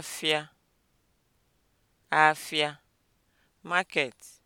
Afịa, afịa, market.